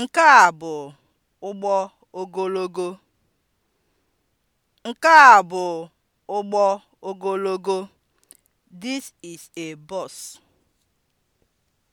Nke a bụ ụgbọ ogologo. Nke a bụ ụgbọ ogologo. This is a bus.